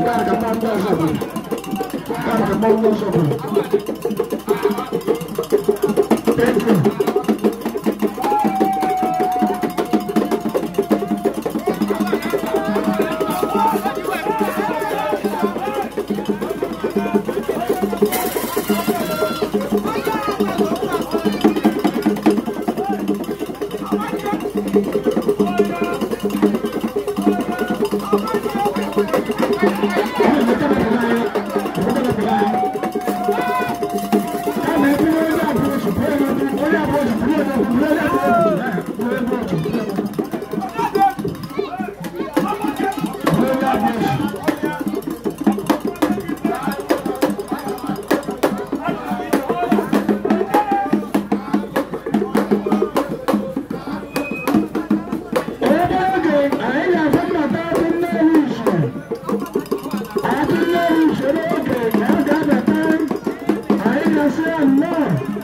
Thank you. Lord.